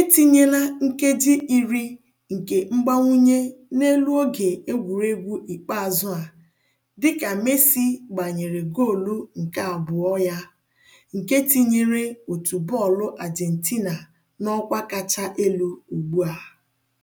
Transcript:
Etinyela nkeji iri nke mgbanwunye n'elu oge egwuregwu ikpeazụ a dịka Messi gbanyere goolu nke abụọ ya, nke tinyere otu bọọlụ argentina n'ọkwa kacha elu ugbu a.